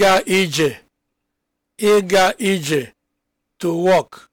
ịga ije ịga ije to walk